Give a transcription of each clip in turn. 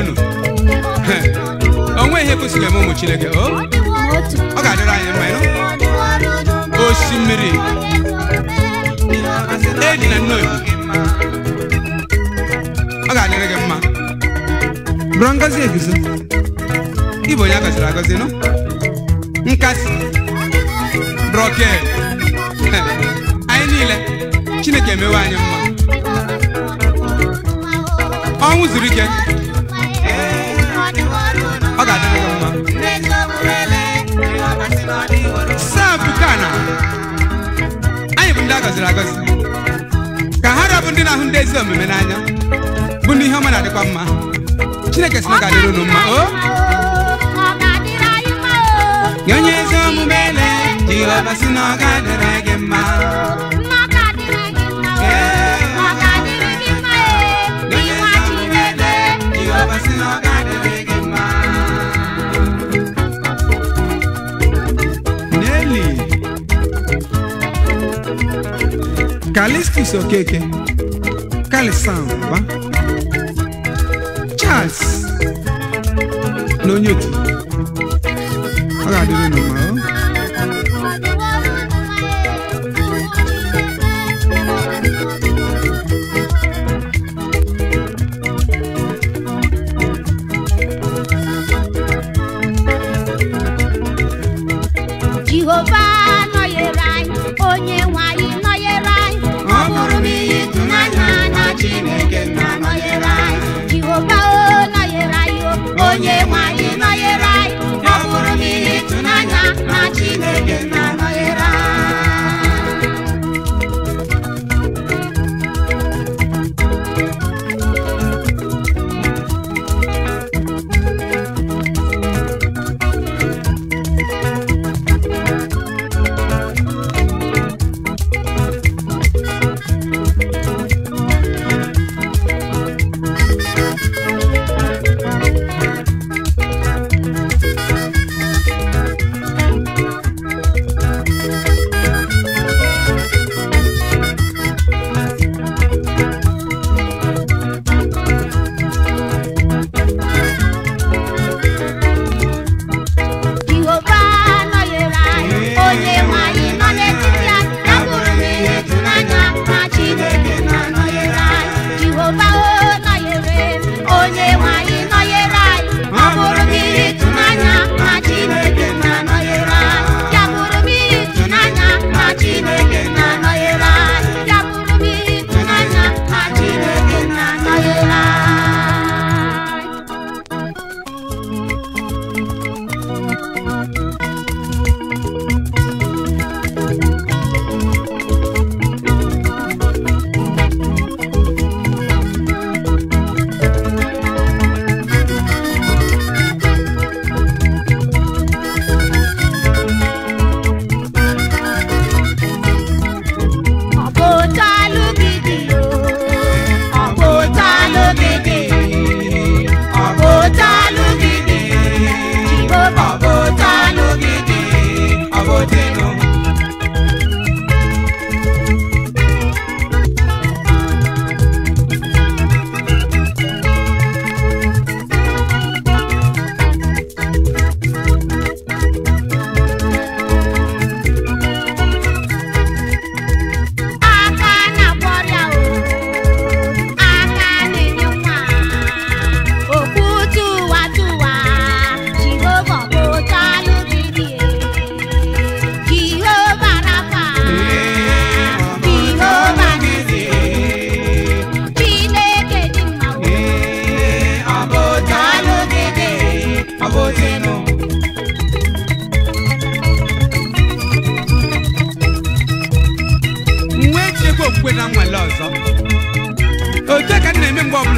unu onwe ihe kwụsịrị eme ụmụ Chineke ọ ga-adịrị anyị mma osimiri e na nnoyi ọ ga-adịrị gị mma bụrụ ngozi eguzo ịbụ onye a gọziri agọzi nụ nkasi brọke anyị niile Chineke emewe anyị mma ọnwụ zuru ike gọziri agọzi ka ha rabụ ndị na-ahụ ndị ezi omume n'anya bụ ndị ihe ọma na-adịkwa mma chineke si na ga-adịrị unu mma o onye ezi omume ele jehova si na ọ ga-adịrị gị mma Nelly. Calixtus Okeke Kalisamba Charles na onye otu ọ ga-adịrị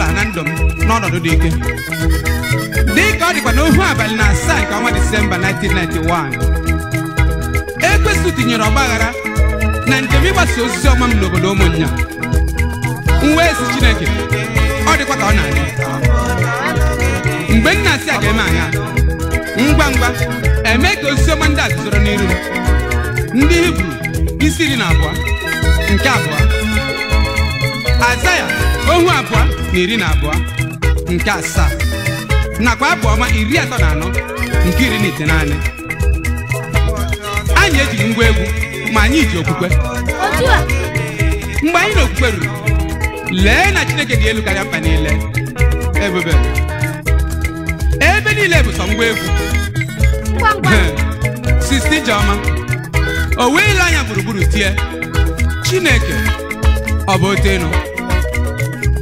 ọbụla na ndụ m n'ọnọdụ dị ike dị ka ọ dịkwa n'ohu abalị na asaa nke ọnwa disemba 1991 ekwesu tinyere ọgbaghara na njem ịgbasa osisi ọma m n'obodo ụmụ nwa esi chineke ọ dịkwa ka ọ na-adị mgbe nna na-asị a ga-eme anya ngwa ngwa eme ka osisi ọma ndị a n'iru ndị hibru isi iri na abụọ nke abụọ azaya ohu abụọ na iri na abụọ nke asaa nakwa abụ ọma iri atọ na anọ nke iri na ite naanị, anyị ejighị ngwa egwu ma anyị ji okwukwe mgbe anyị na okwukwe ruru lee na chineke dị elu karịa mkpa niile ebube ebe niile bụ sọ ngwa egwu sisti Jeọma o wee ile anya gburugburu tie chineke ọ bụ ote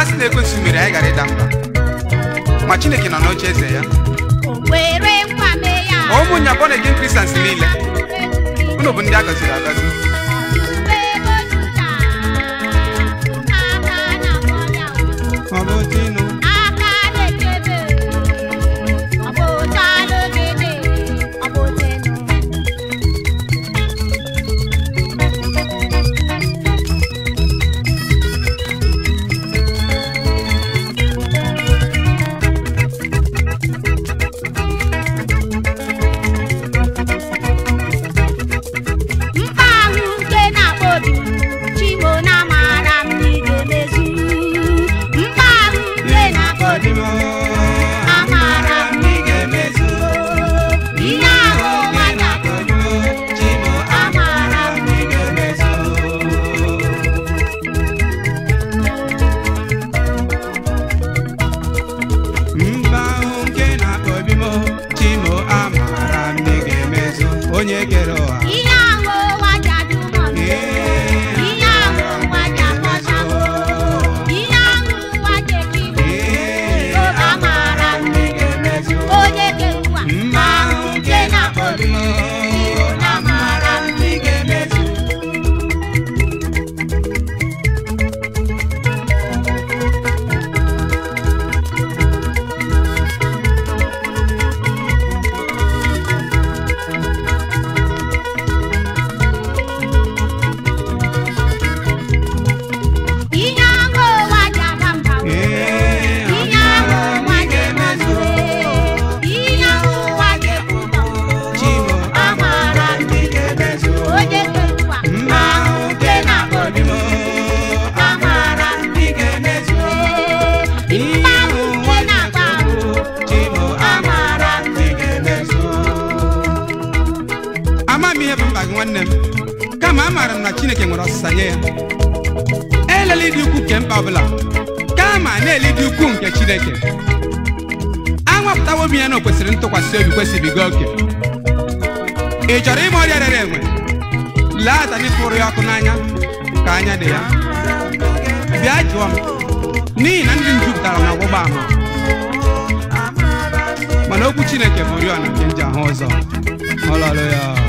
a sị na ekwensụ mere anyị gara ịda mba ma chineke nọ n'oche eze ya na bọnegin kristians niile unu bụ ndị a gọziri agọzi onye kere ọha amaara m na chineke nwere ọsịsa nye ya elele dị ukwu nke mba ọbụla kama na ele dị ukwu nke chineke anwapụtawo m ya na o kwesịrị ntụkwasị obi kwesịbiga oke ị chọrọ ịma ọrịa rere enwe lee atani pụrụ ya ọkụ n'anya ka anya dị ya bịa jụọ m n'ihi na ndị m jupụtara na ọgbụgba ama mana okwu chineke bụ oriọna nke nji ahụ ọzọ. ọlọlụ ya